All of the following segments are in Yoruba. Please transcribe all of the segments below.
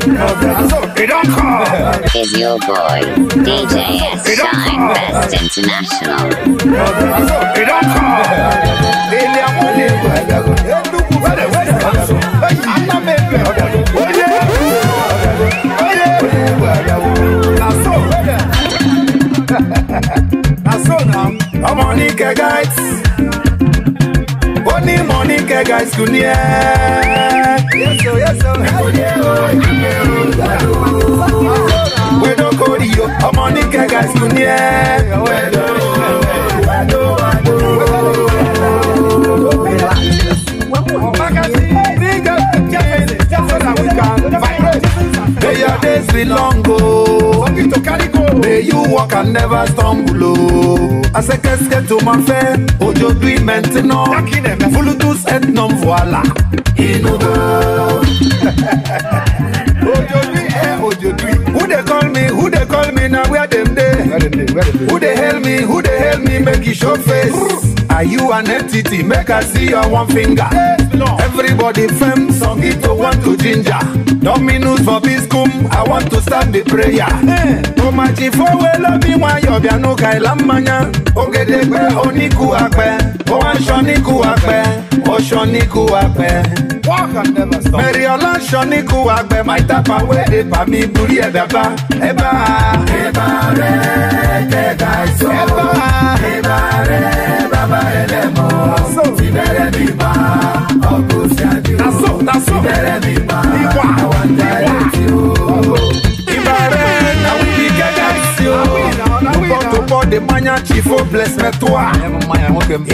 Is your boy DJ Shine Best International? I'm on guys. Nike guys kunie Yeso yeso Wedo kodi yo ọmọ Nike guys kunie Wedo wedo wedo Ọ̀pá kan sí ní ìjọba jẹ́ fẹ́lẹ̀ jẹ́ fẹ́lẹ̀ àwọn ìgbà vibrate days belong o. Oh. to carry go. May you walk and never stumble oh. to my Asekeke Ojo máa fẹ́, òjòdú ìmẹ̀ntì náà. Fuludus et non voila. Inú go. Òjòdú ẹ òjòdú. Who dey call me? Who dey call me na where dem dey? Who dey hail me? Who dey hail me? Make you show face. Are you an entity? Make I see your one finger. Hey. Everybody firm, Songito oh, want to ginger. Dominus for Biscum, I want to stand the prayer. Tomachi eh. for well of me, why you be no Kailamania? Ogedebe Oniku Ape, Oashoniku Ape, Oshoniku Ape. Walk and never stop. Mary Olan Shoniku Ape, my tapa where Epa mi buri ebeba. Eba. Eba re, te daiso. Eba. Eba re, baba elemo. Tibere biba. Sibere biba, awanda eti o. Ibare na we be gagansi o. Tupo tupo de manya chifo bless me toi.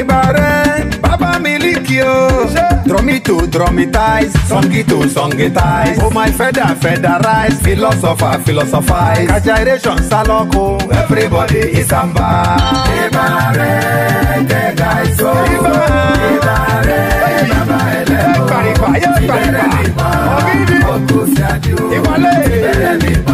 Ibare, baba miliki o. Dromito dromitize, songito songitize. Oh my feather featherize, philosopher philosophize. Kajiration saloko, everybody is amba. Ibare, the guys o. Ibare, baba elemo ìgbà ayé ìgbà ìgbà ọ̀gídì ìwọlé ẹ̀ẹ́dẹ̀ẹ́dẹ̀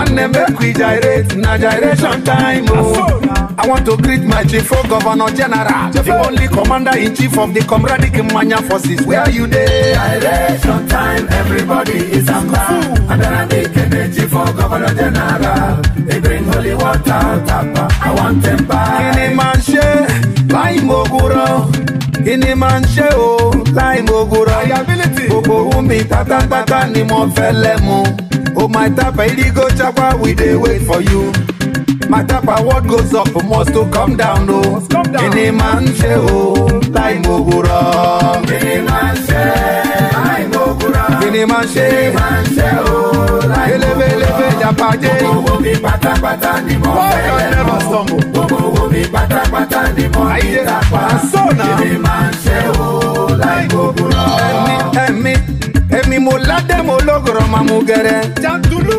one name make we gyrate na gyration time o. Oh. I want to greet my chief for oh, governor general, the only commander in chief of the Comrade Manya forces. Where are you there? Gyration time, everybody is amba. And then I make energy for oh, governor general. They bring holy water, tapa. I want them back. Kini man ṣe, kíni máa ń ṣe o láì mògùrọ̀ gbogbo ohun mi ni mo fẹ́ lẹ́mu o oh, my tapa irigo chapa we dey wait for you my tapa what goes up must to come down o oh. kíni máa ń ṣe o láì mògùrọ̀ kíni máa ń ṣe ni máa ń ṣe. ni máa ń ṣe o láì mọ̀ lọ. gbogbo mi pátápátá ni mo fẹ́ lọ. gbogbo mi pátápátá ni mo ní tàpá. èmi máa ń ṣe o láì gbogbo lọ. ẹ̀mí ẹ̀mí èmi mo ládé mo lọ́gọ̀rọ̀ máa gẹ̀rẹ́. jàǹdùlù.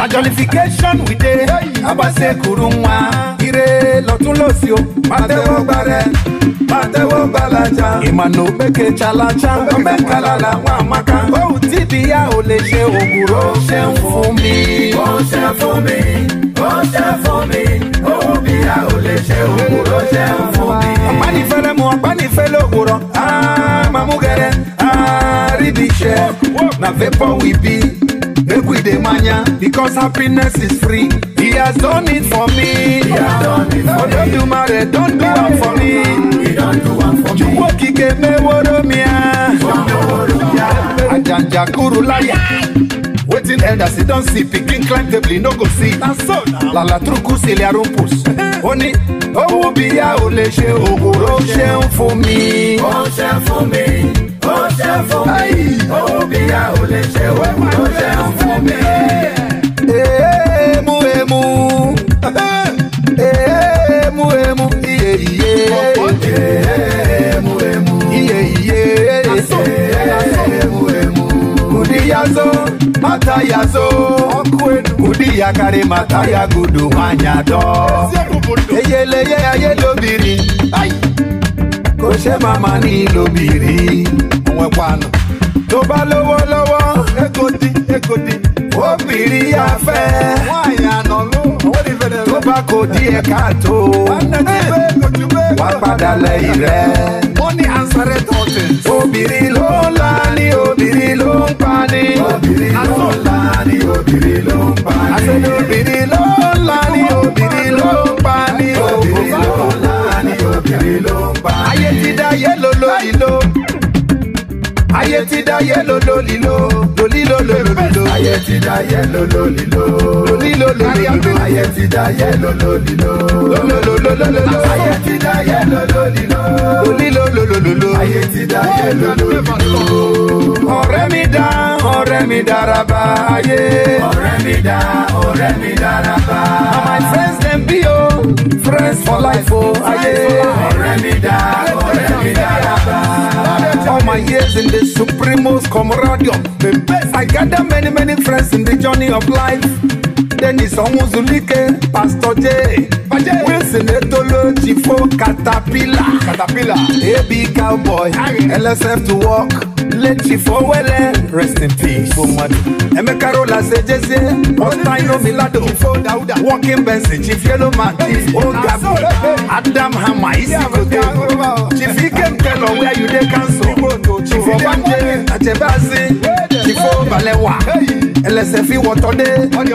na jollification we dey abase kuru nwa ire lọtún lọsí o pàtẹ́wọ́ gbarẹ pàtẹ́wọ́ gbalaja ìmọ̀nà òpèkè chalacha ọmọkàlà làwọn àmàkà ohun tí ìdíyà ò lè ṣe òwúrọ̀ ó ṣe ń fún mi. ó ṣe fún mi ó ṣe fún mi ohun bí a ò lè ṣe òwúrọ̀ ó ṣe ń fún mi. ọ̀pánifẹ́lẹ́ mu ọ̀pánifẹ́lẹ́ òwúrọ̀ á ah, mamú gẹ̀rẹ́ á rí bí iṣẹ́ na vapor we be with the because happiness is free. He has done it for me. He has done it for Odo me. Dumare, don't do one for me. He don't do one for me. Juwo kike meworo mia. Ajanja kuru laya. Wetin elders dey Don't see pikin climb table no go see. Na so na. Lala truku sile arumpus. Ó ní owó bíyà ò lè ṣe ògùrò ṣe ń fún mi. Ó ṣe ń fún mi ó ṣe fún mi owó bí a ò lè ṣe ó ṣe fún mi. èémú èémú èémú èémú iye iye èémú èémú iye iye èémú èémú kudiyazo matayazo kudiyakare matayagudu wanyadọ eyeleye ayelobiri kò ṣe máa ma ní lóbìnrin ẹ̀wànù. tó bá lówó lọ́wọ́ egodi egodi obìnrin afẹ́. wọ́n àyànà ló owó ní fẹ́rẹ̀ lọ. tó bá kò di ẹ̀ka tó. wà á padà lẹ́yìn rẹ̀. money answered all things. obìnrin ló ń la ní obìnrin ló ń pa ní. obìnrin ló ń la ní obìnrin ló ń pa ni obìnrin ló ń la ní obìnrin ló ń pa ní. obìnrin ló ń la ní obìnrin ló ń pa ní. ayé ti dá yé lolo ìlò ayé ti dá yé lolo lílo lolilo lololilo. ayé ti dá yé lolo lílo lolilo lololilo. ayé ti dá yé lolo lílo lolololololo. ayé ti dá yé lolo lílo lolilo lolololo. ayé ti dá yé lolo lílo. ọ̀rẹ́ mi dá ọ̀rẹ́ mi dára bá ayé. ọ̀rẹ́ mi dá ọ̀rẹ́ mi dára bá. na my friends dem be o friends for life o ayé. ọ̀rẹ́ mi dá ọ̀rẹ́ mi dára my years in the Supremos Comradio. The best, I gather many, many friends in the journey of life. Eden Isanwu Pastor J Wilson Etolojifo Caterpillar Caterpillar AB Cowboy LSF to work Leti Fowele rest in peace Fomadu Emeka Rola Sejezie Ostaino Milado Walking Benson Chief Yellow Man Chief Ogabu Adam Hama Isi Kodo Chief Ikem Kelo where you dey cancel Chief Obanje Achebazi. Jifo Balewa. ẹlẹsẹ fi wọtọdé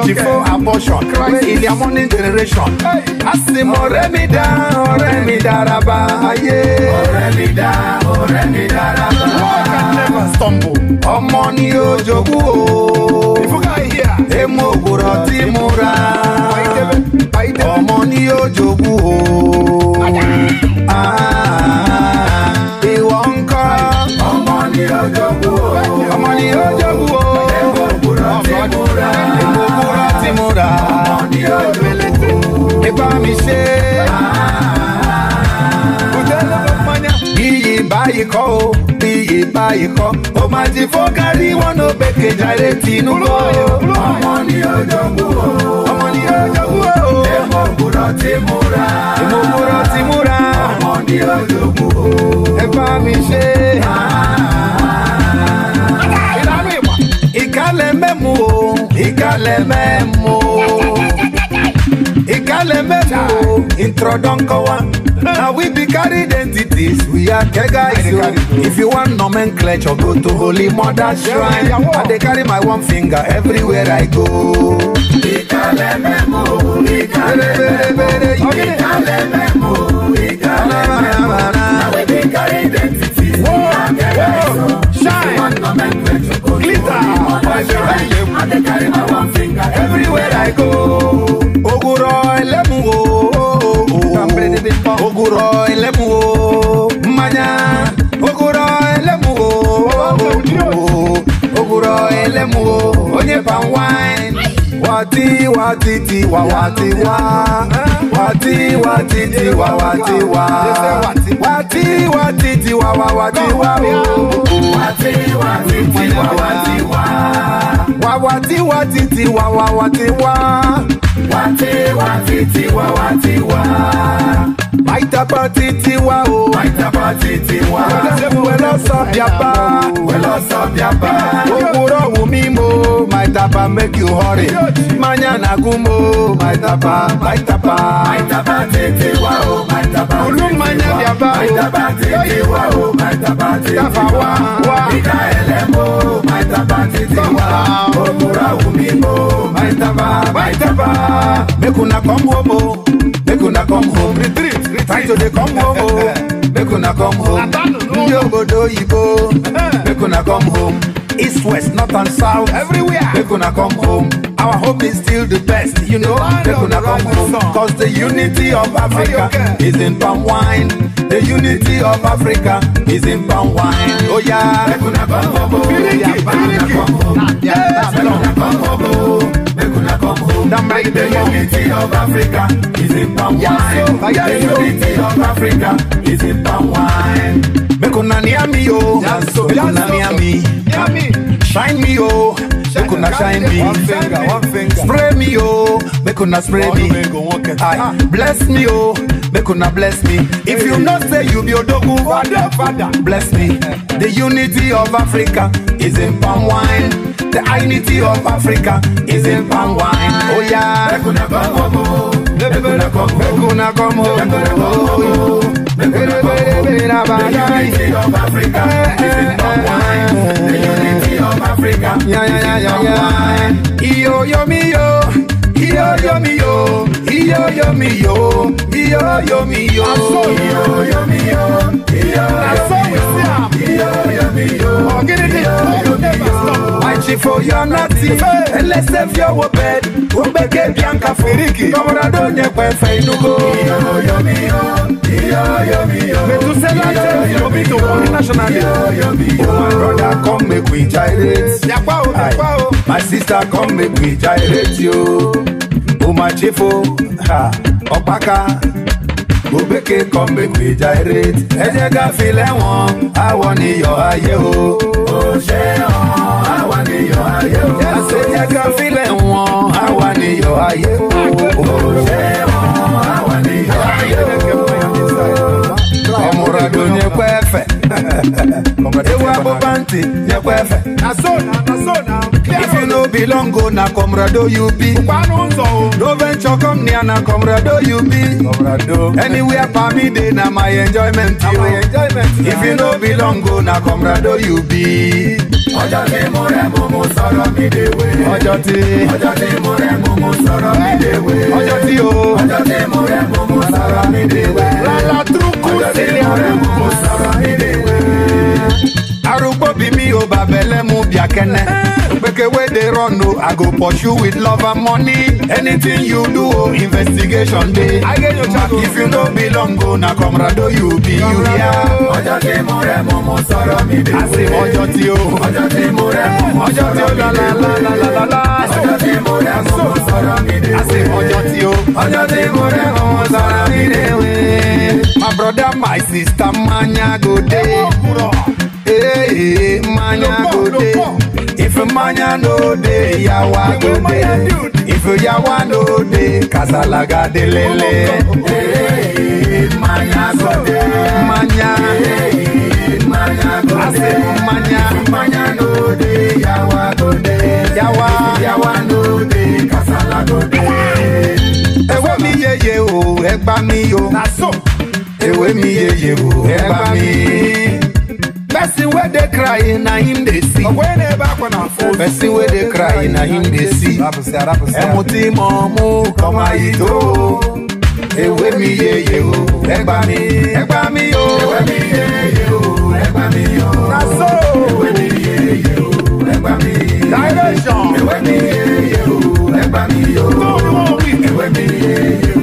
Jifo abortion ilé amọ ní generation. àsìmọ̀ ọ̀rẹ́ mi dá ọ̀rẹ́ mi dára bá ayé. ọ̀rẹ́ mi dá ọ̀rẹ́ mi dára never stumble. ọmọ ni ó jogún o. ìfúkà yìí. èmo òwúrọ̀ tí mo ra. ọmọ ni ó jogún o. Ah, ìwọ ń kọ́. ọmọ ni ó jogún o. ọmọ ni ó jogún o. múra. ọmọ ni ó lò ó. nípa mi ṣe. kùtẹ́ ló ló mọ́nyá. iyì báyìí kọ́ o iyì báyìí kọ́. o máa ti fọ́ kárí wọn ló gbèké jáde tìǹbù. ọmọ ni ó jogún o. ọmọ ni ó jogún o. èmo múra ti múra. èmo múra ti múra. ọmọ ni ó jogún o. ẹ bá mi ṣe. Ah, ah, ah ìkàlẹ̀ mẹ́mu o ìkàlẹ̀ mẹ́mu o ìkàlẹ̀ mẹ́mu o introdonkowa. na we be carry identities we are kegais o if you wan nomenclature go to holy mother shrine i dey carry my one finger everywhere i go. ìkàlẹ̀ mẹ́mu o ìkàlẹ̀ mẹ́mu. noise your high name. I dey carry my one everywhere I go. Oguro elemu o. Oguro elemu o. Mmanya. Oguro elemu o. Oguro elemu o. Onye palm wine. wati wati ti wa wati wa wati wati ti wa wati wa wati wati ti wa wa wati wa wati wati ti wa wati wa wa wati wati ti wa wa wati wa wati wati ti wa wati wa. àìtàpá títí wá o. àìtàpá títí wá. ṣẹ́fù wẹ́lọ́sàn bíapá. wẹ́lọ́sàn bíapá. òwúrọ̀ wù mí mo. màìtàpá make you hurry. manya nàgún mo. màìtàpá màìtàpá. màìtàpá títí wá o. màìtàpá títí wá. olú manya biaba, o. màìtàpá títí wá o. màìtàpá títí wá. káfà wá wá. ìdá ẹlẹ́mọ̀. màìtàpá títí wá. òwúrọ̀ wù mí mo. màìtàpá màìtàpá. make una come home o. make una come home time to dey come home o make una come home ndị obodo oyibo make una come home east west north and south everywhere make una come home our hope is still the best you know make una come home cause the unity of africa is in palm wine the unity of africa is in palm wine oya oh, make una come home o yaba una come home yaba una come home o. come home. the unity of Africa is in palm wine. The unity of Africa is in palm wine. Make una near me, oh. Make una near me. Shine me, oh. Make una shine me. Spray me, oh. Make una spray me. Aye. Ah. Bless me, oh. Make una bless me. If you not say you be Odogu, father, father, bless me. The unity of Africa is in palm wine. The unity of Africa is in palm wine. Oh yeah. Mekuna come home. Mekuna come home. Mekuna come home. Mekuna come home. The unity of Africa is in palm wine. The unity of Africa is in palm wine. Iyo yo mi yo. Iyo yo mi yo. Iyo yo mi yo. Iyo yo mi yo. Iyo yo mi yo. Iyo yo mi yo jam. Ọ̀gídìdì ló never stop. Àìsìfò yọ nọ́ọ̀tì. Ẹlẹ́sẹ̀ fi ọwọ́ bẹ̀. Ó gbẹ́gẹ́ bí àǹkà fèrèkì. Tọmọdádó yẹn pẹ̀fẹ̀ inúgbó. Mẹ̀túsẹ́lá jẹ́ ìyọ̀bí tó wọ́n ní nationally. Oh my brother come make we gyrate. Yàpá o, My sister come make we gyrate yo. Oh my chief o, Obeke come make we gyrate. Ẹ jẹ́ ká fi lẹ́wọ̀n, àwọn níyọ̀ ayé o. Ó ṣe hàn, àwọn níyọ̀ ayé o. Ẹ jẹ́ ká fi lẹ́wọ̀n, àwọn níyọ̀ ayé o. Ó ṣe hàn, àwọn níyọ̀ ayé o. Ọmọràn ló ní pẹ́ẹ́fẹ̀. Ewu abọ́ bá ń tì ní pẹ́ẹ́fẹ̀. Na so na, na belong go na comrado you be. No venture come near na comrado you be. Comrado. Anywhere for me dey na my enjoyment. If you no belong go na comrado you be. Ọjọ́ tí mo rẹ̀ mú mú sọ̀rọ̀ mi déwé. Ọjọ́ tí. Ọjọ́ tí mo rẹ̀ mú mú sọ̀rọ̀ mi déwé. Ọjọ́ tí o. Ọjọ́ tí mo rẹ̀ mú mú sọ̀rọ̀ mi déwé. Lálá túrúkú sílẹ̀. Ọjọ́ tí mo mú mú sọ̀rọ̀ mi déwé arugbo mi me o babele mu biakene gbeke wey dey run o i go pursue with love and money anything you do o investigation dey if you no belong o na comrado you be you ya. ọjọ́ tí mo rẹ̀ mú mú sọ̀rọ̀ mi dé wé. àṣì ọjọ́ tí o. ọjọ́ tí mo rẹ̀ mú mú sọ̀rọ̀ mi dé wé. ọjọ́ tí mo rẹ̀ mú mú sọ̀rọ̀ mi dé wé. àṣì ọjọ́ tí o. ọjọ́ tí mo rẹ̀ mú mú sọ̀rọ̀ mi dé wé. my brother my sister manya go dey dey, manya go dey. If manya no dey, yawa go dey. If yawa no dey, kasala ga dey lele. Manya go dey, manya. Manya go dey, manya. Manya no dey, yawa go dey. Yawa, yawa no dey, kasala go dey. Ewo mi yeye o, ẹgba mi o. Èwe mi yeye o, ẹgba mi person where they cry na him they see But ní ẹ̀bá kan náà fún person wey dey cry na him they see ẹmu tí mo mú kọ́mọ yìí tó ewé mi yeye o ẹgbà mi ẹgbà mi o Ewe mi yeye o ẹgbà mi o na so ewé mi yeye o ẹgbà mi direction Ewe mi yeye o ẹgbà mi o ewé mi yeye o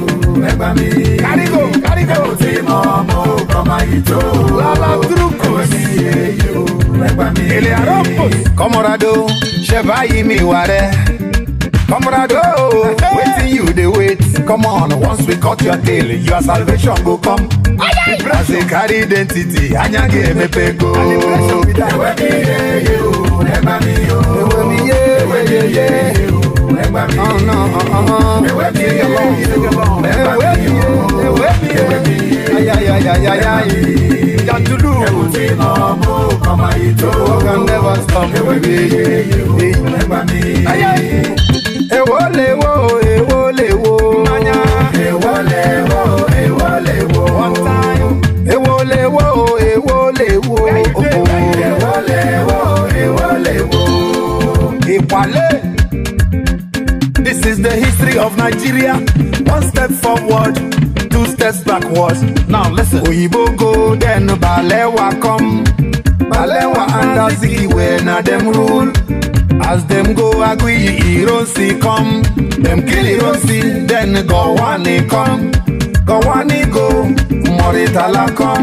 ẹgbà mi. kárígò kárígò. ẹ̀rù tí mo mú kọ́má yìí tó. lálá dúrúkọ sí èyí o ẹgbà mi. èlé àrọ́ pò. kọ́mọ́ràdó ṣe báyìí mi wà rẹ. Comrado, waiting you dey wait. Come on, once we cut your tail, your salvation go come. As a carry identity, anyage emepe go. Ewe mi ye, ewe mi ye, ewe mi ye oh! mí. Ẹ̀wẹ́ bí yóò, ẹ̀wẹ́ bí yóò, ẹ̀wẹ́ bí yóò, ẹ̀wẹ́ bí yóò, ayayayaya yìí. Jantulu. Ẹ̀wù tí nà ọmọ kọ̀mọ̀ yìí tó. Ọ̀gá never stop. Ẹ̀wẹ́ bí yóò, ẹ̀gbà mí. Ayayi. the history of Nigeria. One step forward, two steps backwards. Now listen. Oyibo go, then Balewa come. Balewa and Azikiwe na them rule. As them go Agui, Ironsi come. Them kill Ironsi, then Gowani come. Gọ̀wánígò Mọ̀rìtàlá kan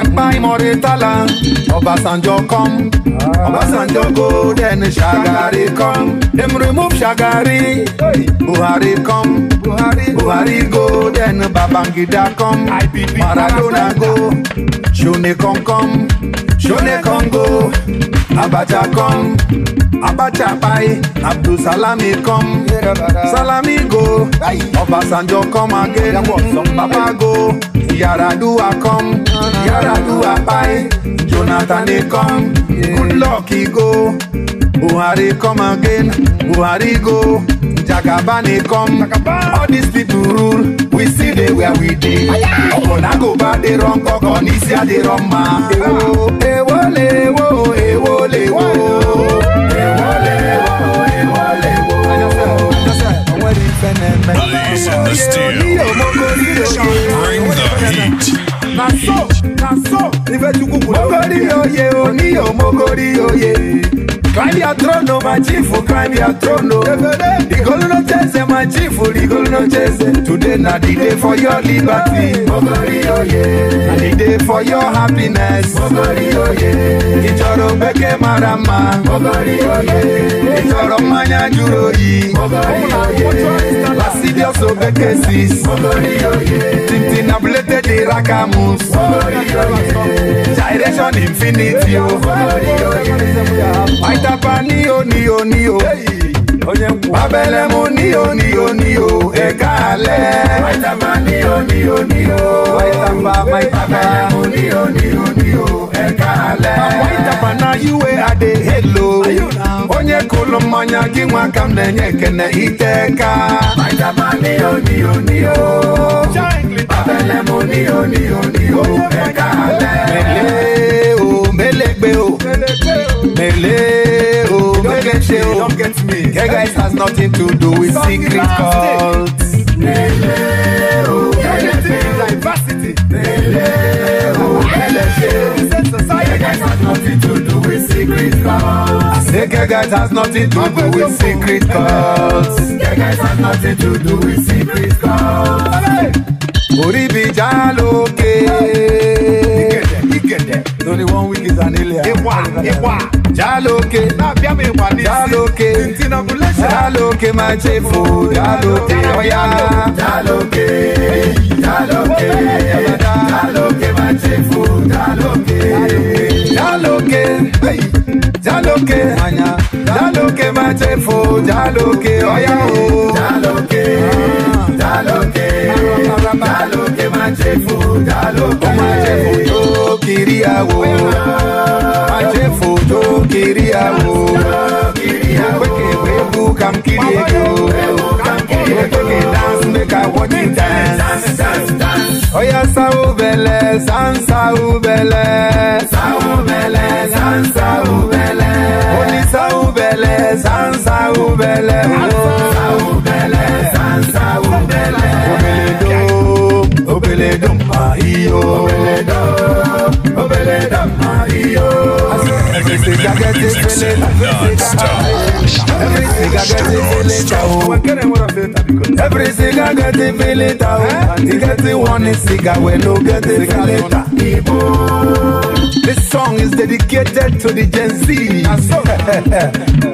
ẹ̀pá ìmọ̀rìtàlá Ọbásanjọ́ kan Ọbásanjọ́ golden Shagari kan dem remove Shagari Buhari kan Buhari golden Babangida kan Maradona go Ṣóní kan kan Ṣóní kan go Abacha kan. Abacha buy, Abdul Salami come, Salami go, Obasanjo come again, Baba go, Yaradua come, Yaradua buy, Jonathan they come, good e go, Buhari come again, Buhari go, Jagabani come, all these people rule. we see dey where we dey. ọkọ̀ náà kò bá dé rán kọ́kọ́ ní sí àdé rán máa. èwo èwo lè wo èwo lè wo. What's in the steel? Bring the heat. na so na so ifechukwu kwuru mogori oye oniyo mogori oye climb your throne o my chief climb your throne o rigolu no cheze my chief rigolu no cheze today na the day for your liberty mogori oye na the day for your happiness mogori oye ịchọrọ beke mara mma mogori oye ịchọrọ mmanya juru oyi mogori oye Insidious Obekesis Tintin abúlété di Rakamus Gyration Infinity o Aitapa ní o ní o ní o. Abẹ́lẹ̀ mo ní o ní o ní o ẹ̀ka alẹ́. Maitama ní o ní o ní o. Maitama maitama. Abẹ́lẹ̀ mo ní o ní o ní o ẹ̀ka alẹ́. Maitama na iwe ade helo. Onye kụlụ mmanya gị nwa ka m na-enye ekene ite ka. Maitama ní o ní o ní o. Abẹ́lẹ̀ mo o ní o ní o ẹ̀ka alẹ́. Mele o, melegbe o, mele wey get shame don get me. Gay guys has nothing to do with secret cults. Lele guys has nothing to do with secret cults. gay guys has nothing to do with secret cults. Gay guys has nothing to do with secret cults. Orí bìjà ọ̀gẹ̀dẹ̀ torí one week kìí sàn ilé ẹ̀. ìwà ìwà jálóke lábíàmì ìwà ní Jaloke. jálóke tìǹtìǹnàkúlẹ́sẹ̀ jálóke máa ṣe fò jálóke ọ̀yá Jaloke. Jaloke. Jaloke máa ṣe fò Jaloke. Jaloke. jálóke Jaloke. máa ṣe fò jálóke ọ̀yá o jálóke dálókè dálókè máa ṣe fún dálókè. ó máa ṣe fún tó kiri àwò máa ṣe fún tó kiri àwò wékèwé bú kam kiri èkó wékèké dance make i watch you dance. oya sáwó bẹ̀lẹ̀ sàn sáwó bẹ̀lẹ̀. sáwó bẹ̀lẹ̀ sàn sáwó bẹ̀lẹ̀. oní sáwó bẹ̀lẹ̀ sàn sáwó bẹ̀lẹ̀. nigga get this feeling. Every nigga get this feeling. Oh. Every nigga get the feeling. And he get the oh. eh? one nigga we no get the feeling. People. This song is dedicated to the Gen Z.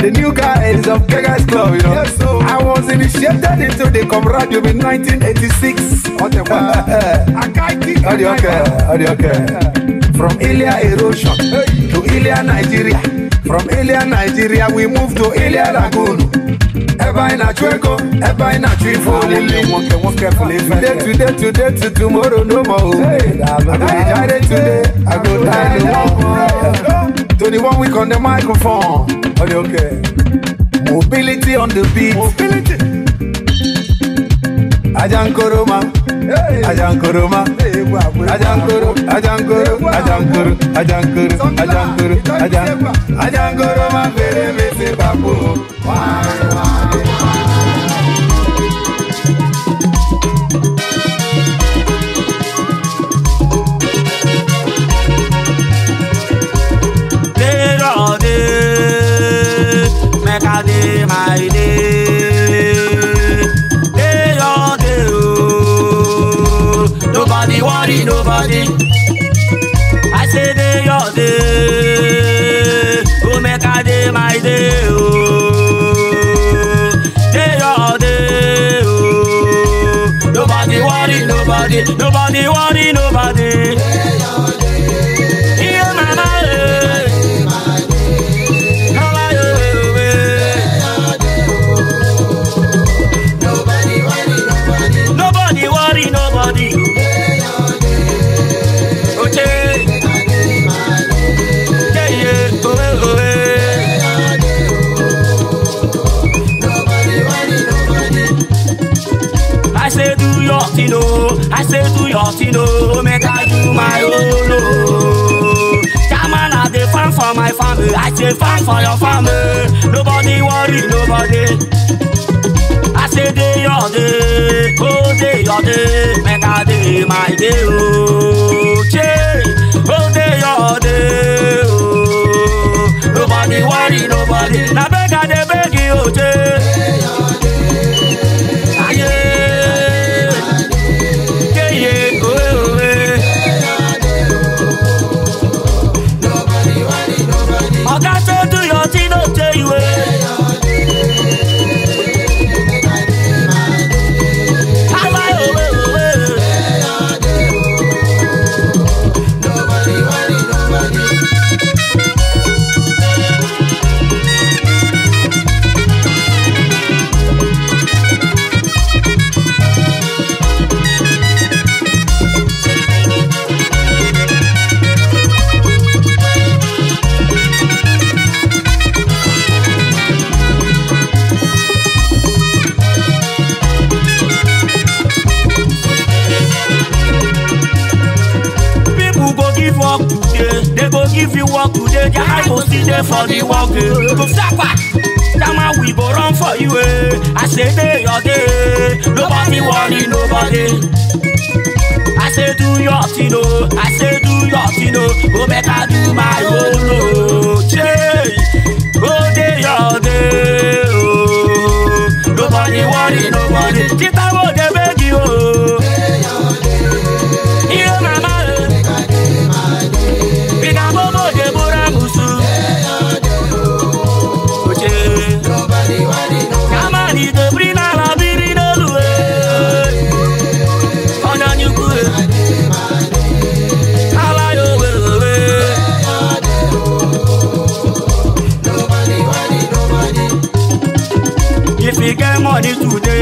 the new guys of Kegas Club, you know. Yes, so. I was initiated into the camaraderie in 1986. What the Uh, uh, I can't keep. okay, okay. From Ilya Erosion. Hey. to Ilia, Nigeria. From Ilia, Nigeria, we moved to Ilia Lagoon. Eba ina chueko, eba ina chuifo lili Today, today, today, to tomorrow no more I go die today, I go die no more one week on the microphone oh, Are okay? Mobility on the beat Mobility Ajankoroma ajankoro ma ajankuru, ajankuru, ajankuru, ajankuru, ajankoro ajankoro ma fèrè mi sí bàbá wàá wàá. nobody. I say day your day, go make a day my day. Oh, day your day. Oh, nobody worry nobody, nobody worry nobody.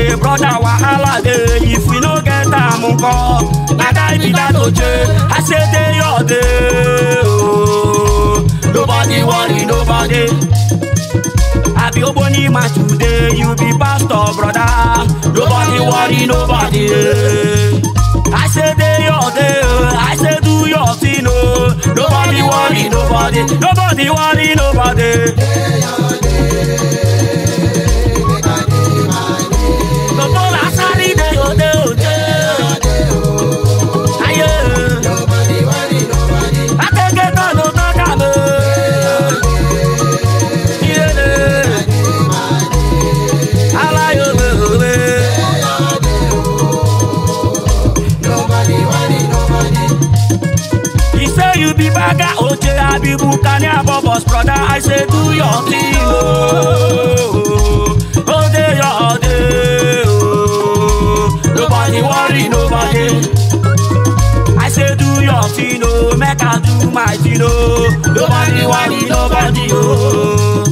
say brother wahala dey if we no get am nko na die be that oje i say day your day ooo nobody worry nobody. I be Oboni man today, you be pastor brother. Nobody worry nobody. I say day your day, I say do your thing oh. Nobody worry nobody, nobody worry nobody. Day your day. gaga oje abibu kani abobos brother i say do your thing oh. o dey your day oh. nobody worry nobody i say do your thing oh. make i do my thing oh. nobody worry nobody Oh.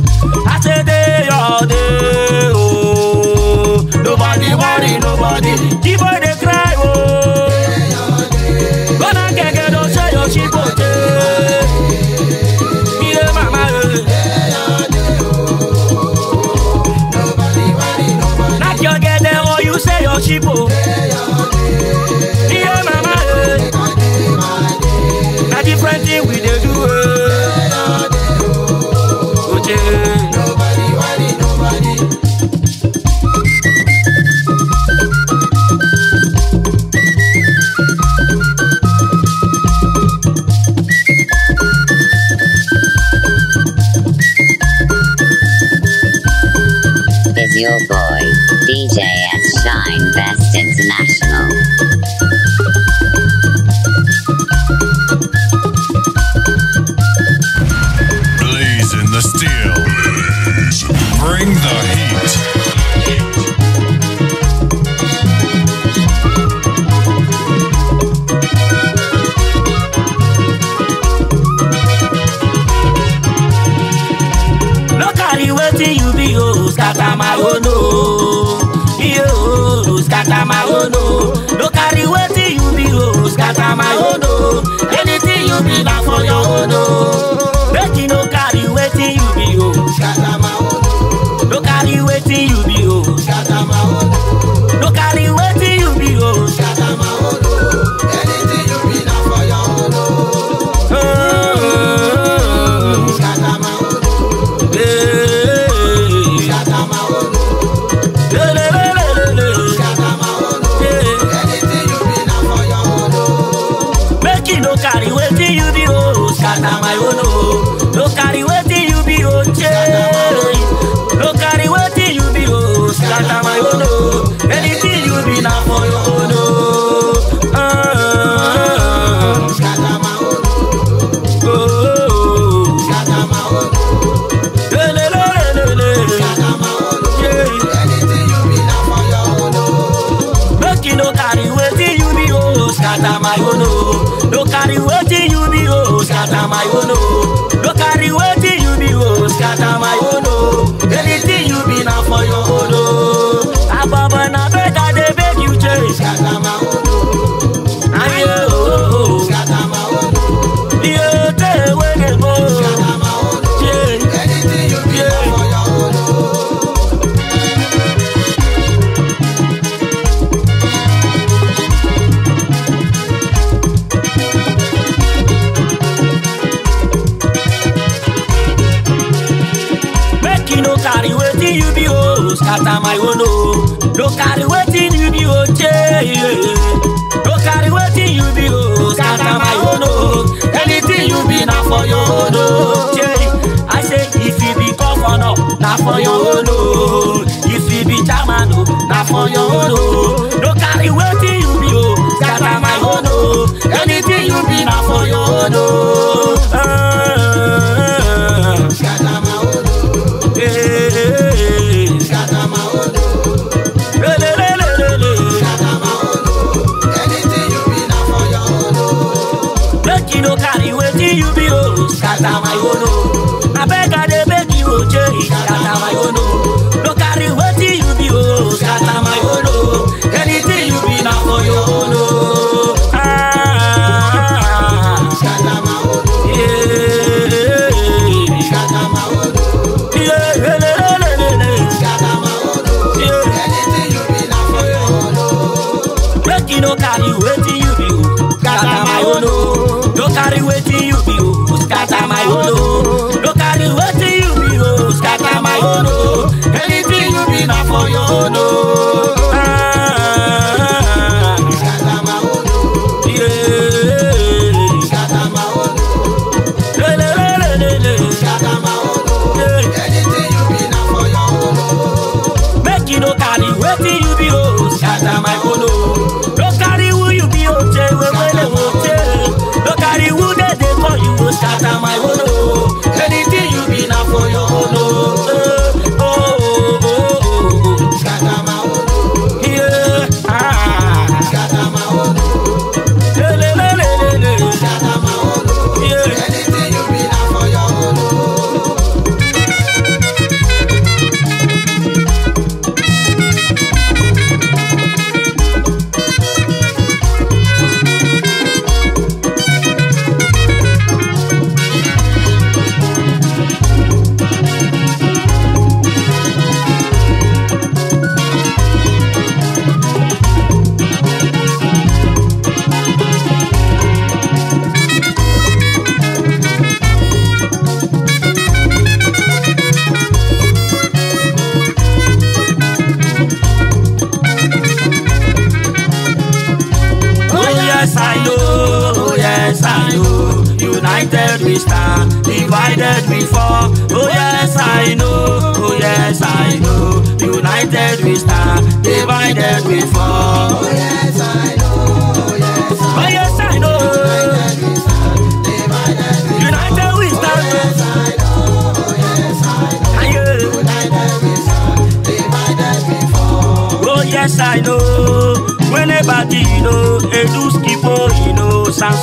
i say dey your day oh. nobody worry nobody. Keep I no carry wetin you be o scatter my whole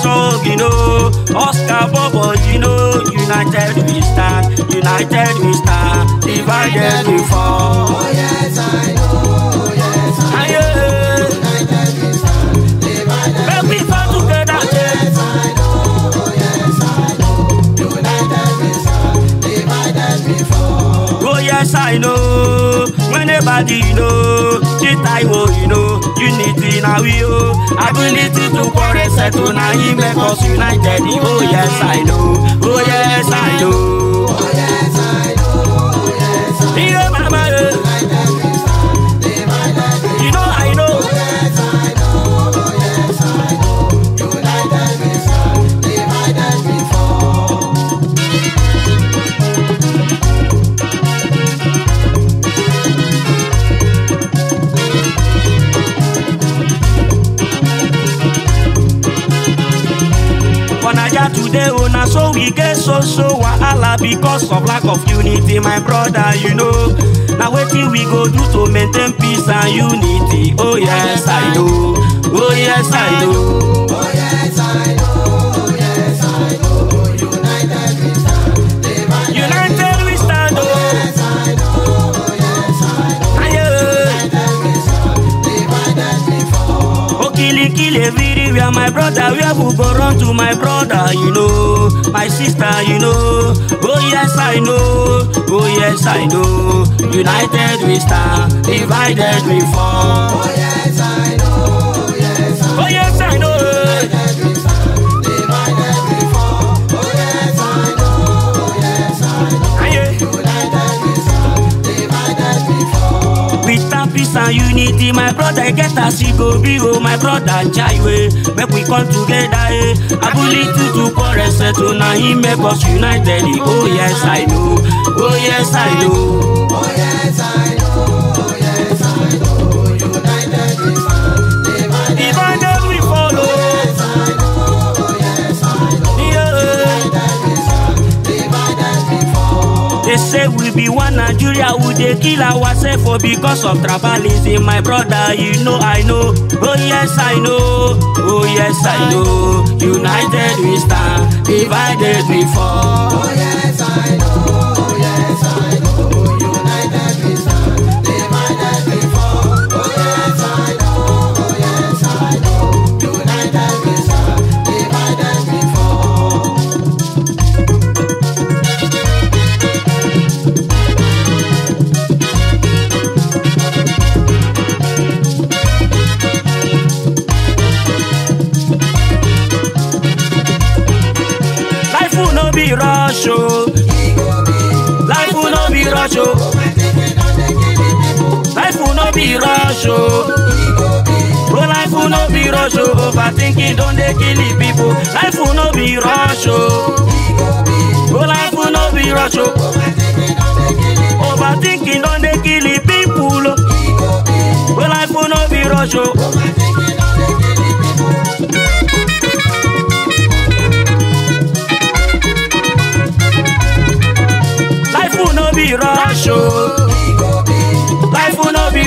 song, you know. Oscar Bobo, you know. United we stand, united we stand. Divided we fall. Oh, yes, I know. Oh, yes, I know. United we stand, divided we fall. oh, yes, I know. Oh, yes, I know. United we stand, divided we fall. Oh, yes, I know. When everybody you know, shit I will you know, unity now we oh. Ability to quarrel settle now he make us united. Oh yes I know, oh yes I know. dey oh na so we get so so wahala because of lack of unity my brother you know na wetin we go do to maintain peace and unity oh yes i know oh yes i know. We are my brother We have go run to my brother you know my sister you know oh yes i know oh yes i know united we stand divided we fall oh yes i know. peace and unity my brother get as e go be o oh, my brother jaiwe make we come together eh abúlé tuntun kọ rẹsẹ tó oh, na him make us united eh. oh yes i know oh yes i know. Oh yes, I know. Oh, yes, I know. say we be one nigeria we dey kill ourselves for because of tribalism my brother you know i know oh yes i know oh yes i know united we stand divided we fall. oh yes i know. be rush oh. Bro, life will not be rush oh. Overthinking don't they kill the people. Life will not be rush oh. Bro, life will not be rush oh. Overthinking don't they kill the people Bro, oh. life will not be rush oh. Life will no be rush oh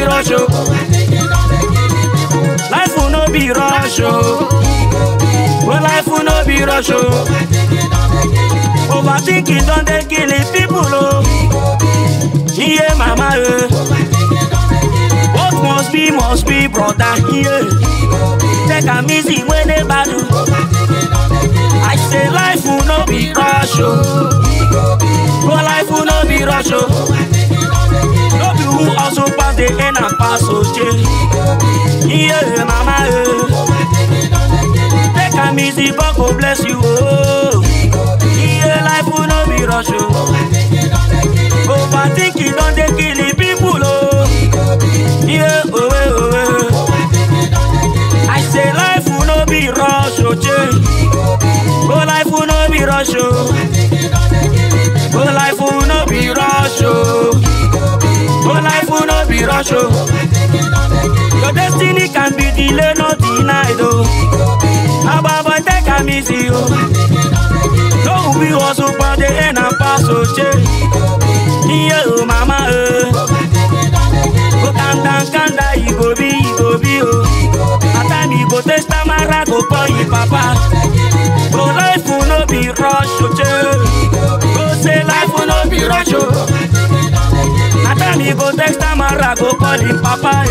rush o. Oh. life no be rush o. Oh. wey life no be rush o. Oh. overthinking don dey killing people o. iye mama o. Eh. what must be must be brother iye. take am easy wey dey bad i say life no be rush o. wey life no be rush o who also pass the end and pass Oje. Yeah, mama, eh. Take a easy, but go bless you. Oh. Yeah, life will not be rush. Oh. Overthink it, don't they kill it, people. Oh. Yeah, oh, oh, oh. I say life will not be rush. Oh, oh life will not be rush. Oh, oh life will not be rush. Oh be rush oh. Your destiny can be delayed, not denied oh. Ababa take a easy oh. No be hustle for the end and pass oh che. Yeah oh mama oh. Go kanda go, Igbo bi go, bi oh. Ata mi go taste amara go call you papa. Go life no be rush oh che. Go say life no be rush oh time he go text am and I go call him papa.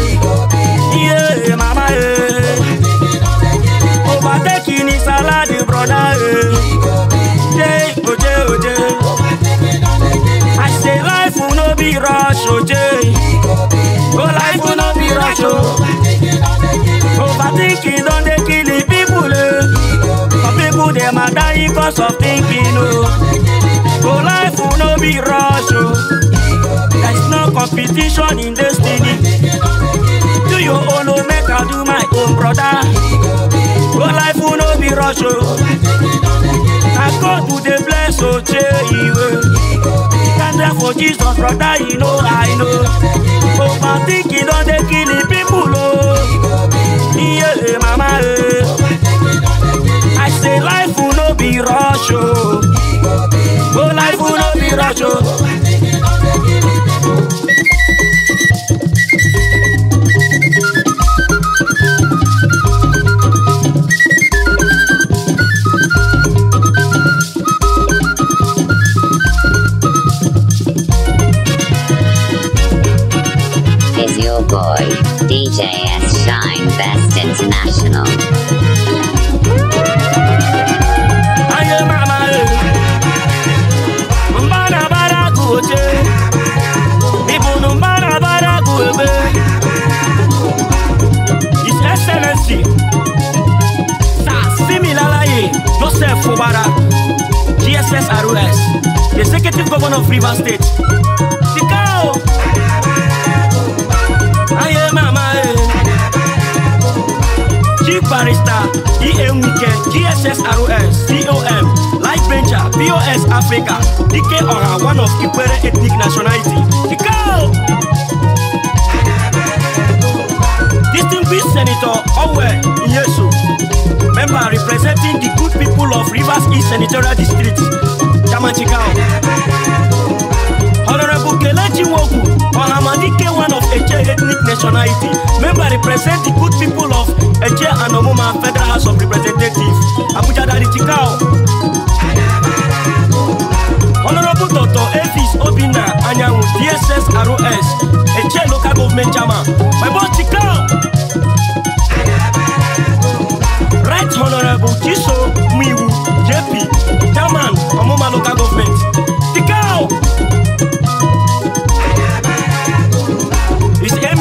Yeah, mama, eh. eh. yeah. Overtaking his salad, brother. Yeah, oje, oje. I say life will no be rush, oje. Go life will no be rush, oh. Overtaking don't dey kill the people, eh. Some people dem are dying cause of thinking, oh. Go life will no be rush, oh. There is no competition in destiny. Do your own, oh, make I do my own, brother. Go life will no be rush, oh. I go to the place, oh, e Thank for Jesus, brother, you know I know. Oh, my thinking on oh, the killing people.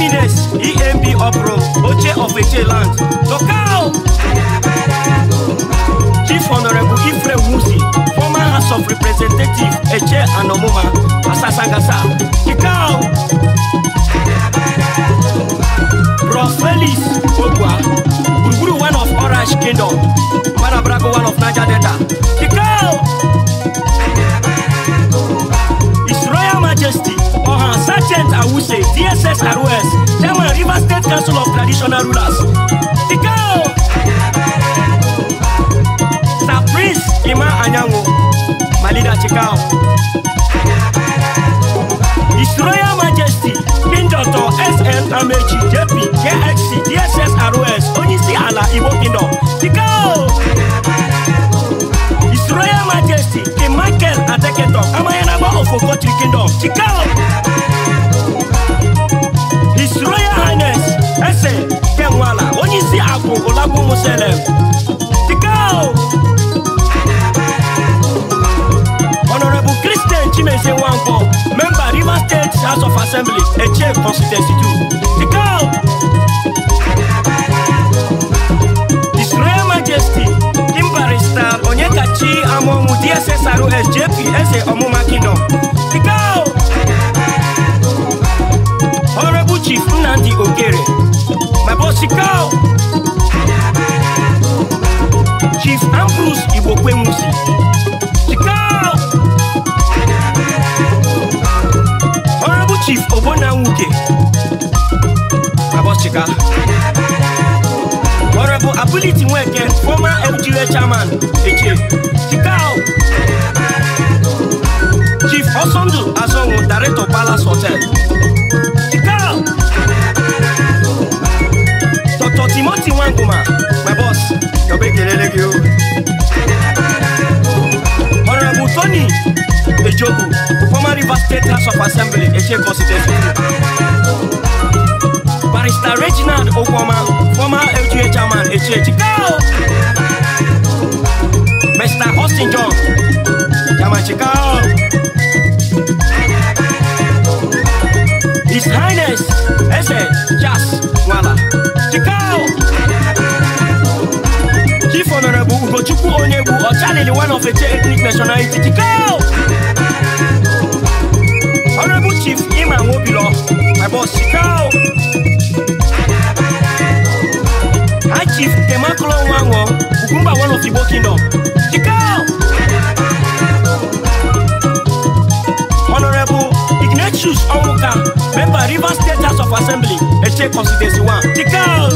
eminence emp opro oche of eche land tokao chief honorable ifre musi former house of representative eche and omuma asasagasa kikao bro felix ogwa gburugburu one of orange kingdom marabrago one of naija delta kikao his royal majesty Ohan, Sergeant Awuse, DSS ROS, Chairman River State Council of Traditional Rulers. Tikao! Sir Prince Ima Anyango, Malida Tikao. His Majesty, King Dr. S.N. Amechi, JP, KXC, DSS ROS, Onisi Ala, Ibo Kingdom. Tikao! Tikao! Royal Majesty, the Michael Adeketo, Amayanaba of Ogotri Kingdom, Chikao. His Royal Highness, Ese Kenwala, Onyisi Abu Olabu Muselem, Chikao. Honorable Christian Chimese Wangpo, member River State House of Assembly, Eche Constituency 2, Chikao. His Royal Majesty, Satan onye kachi amọnwụ DSSR SJP eze ọmụma kingdom go Honorable Chief Nnamdi Ogere my boss go Chief Ambrose Igbokwemusi Honorable Chief Obona Nwuke my boss chika Honorable Ability Weke, former MGA chairman, Eche. Chikao. Chief Osondu Azongo, director Palace Hotel. Chikao. Dr. Timothy Wanguma, my boss. Your big you. Honorable Tony Ejoku, former River State House of Assembly, Eche Constituency. Barrister Reginald Okwama, former LGA chairman, HH. Go! Mr. Austin John, chairman Chicago. His Highness, Eze Jas Wala, Chicago. Chief Honorable Ugochukwu Onyebu, Ochalili, one of the ethnic nationality, Chicago. Honorable Chief Iman Wobilo, my boss Chicago. High Chief Temakolo Wango, Ukumba one of Igbo Kingdom. Chikao! Honorable Ignatius Onwuka, member Rivers State of Assembly, Eche Constituency 1. Chikao!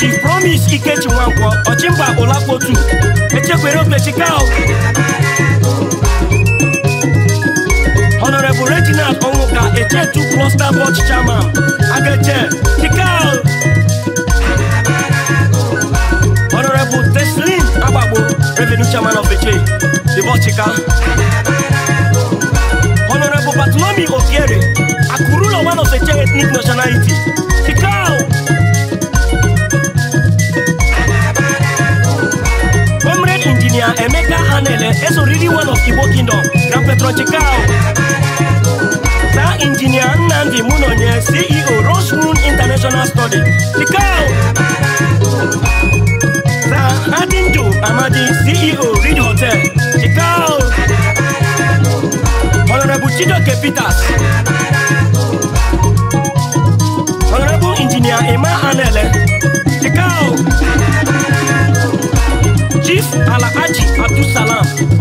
Chief Promise Ikechi Wango, Ochimba Olapo 2. Eche Kwerope Chikao! Chikao! honorable reginald onwuka echetu cluster board chairman ageje tikal honorable teslin agbagbo revenue chairman of the eche dibochika honorable bartolome obiere akurulo one of the eche ethnic nationality tikal. Engineer Emeka Anele is already one of Igbo Kingdom, Grand Petro Chikao. Now Engineer Nandi Munonye, CEO Rose Moon International Study, Chikao. Now Adinjo Amadi, CEO Reed Hotel, Chikao. Honorable Chidoke Peters.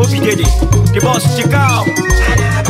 Bobby Diddy, the boss, check out.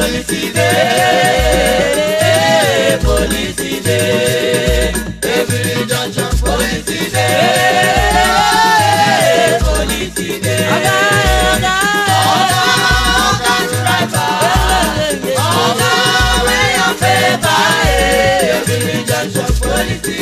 bòlì ti dé bòlì ti dé ebiri junction bòlì ti dé bòlì ti dé. ọ̀gá ọ̀gá ọ̀gá ọ̀gá dírẹ́fà ọ̀gá wẹ́yọ̀ fẹ́ báyìí ebiri junction bòlì ti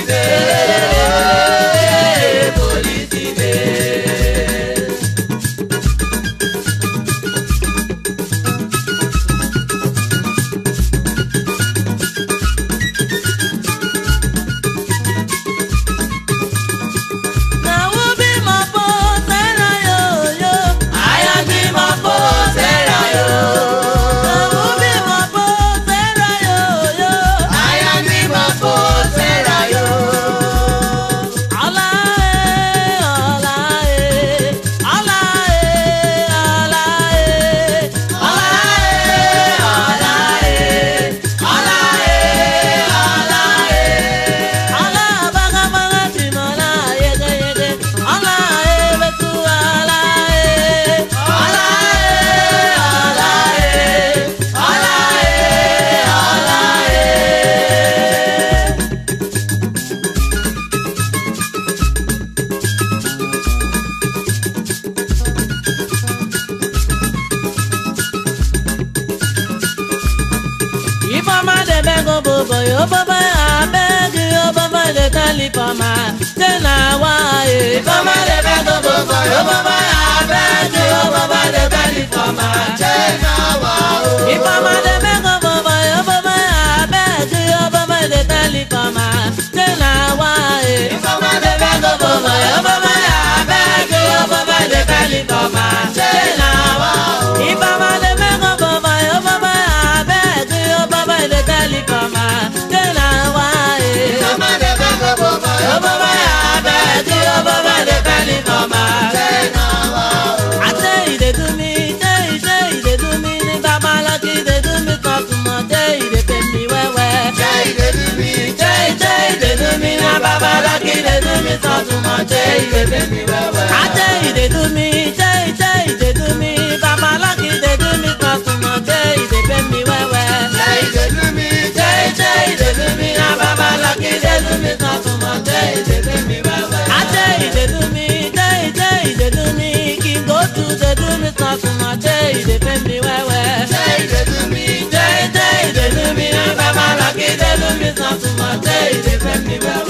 thinking they do me so too much. Hey, they do me well well. I tell you they do me, tell you, tell you they do me. Baba lucky they do me cause too much. Hey, they pay me well well. Hey, they do me, tell you, tell you they do me. Now Baba lucky they do me cause too much. Hey, they pay me well well. I tell you they do me, tell you, tell you they do me. King go to they do me cause too much. Hey, they pay me well well. Hey, they do me, tell you, tell you they do me. Now Baba lucky they do me cause too much. Hey, they pay me well well.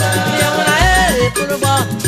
Mama.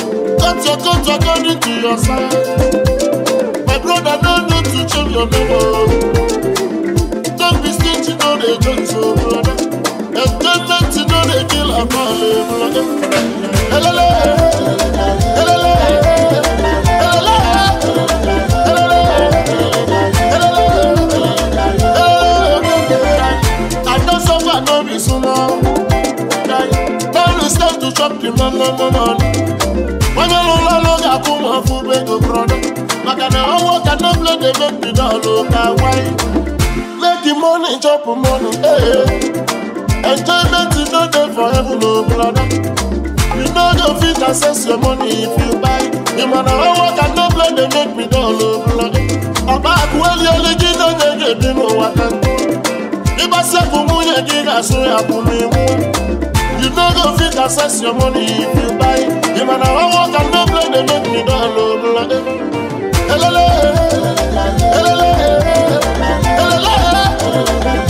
Count your coat according to your size. My brother, no need to change your name. Don't be stingy, no they join so brother. Enjoyment, you know they kill a man, brother. Hello, hello, hello. Don't stop to chop the man, man, man want food wey go product maka na work i no play dey make me dull o ka why make the money chop money eh enjoyment no dey for heaven o brother you no go fit access your money if you buy the man na work i no play dey make me dull o brother ọba àkúwẹ́lì olójú ló ń gbèdé nínú wa kan ìbáṣepọ̀ mú yẹ kí n àṣùn àkùnrin mú no go fit access your money if you buy you man i wan work and no play They make me don lo lade elele elele elele elele.